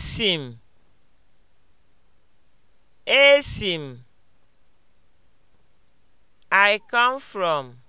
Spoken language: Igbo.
Esi m, I come from.